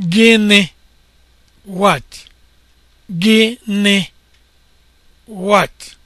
Gịnị? What? Gịnị? What?